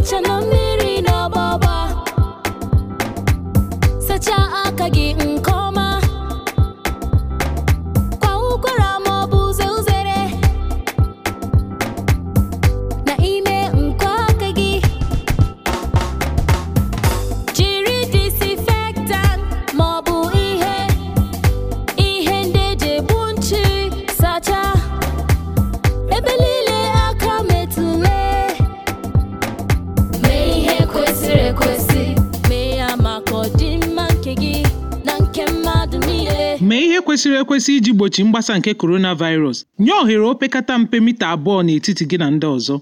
eche na mmiri n'ọgbọgba sachaa aka gị Mee ihe kwesịrị ekwesị iji gbochi mgbasa nke coronavirus. Nye ohere opekata mpe mita abụọ n'etiti gị na ndị ọzọ.